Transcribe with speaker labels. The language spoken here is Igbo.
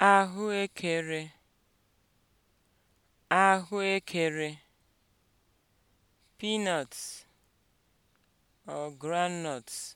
Speaker 1: ahụekere ahụekere peanuts or groundnuts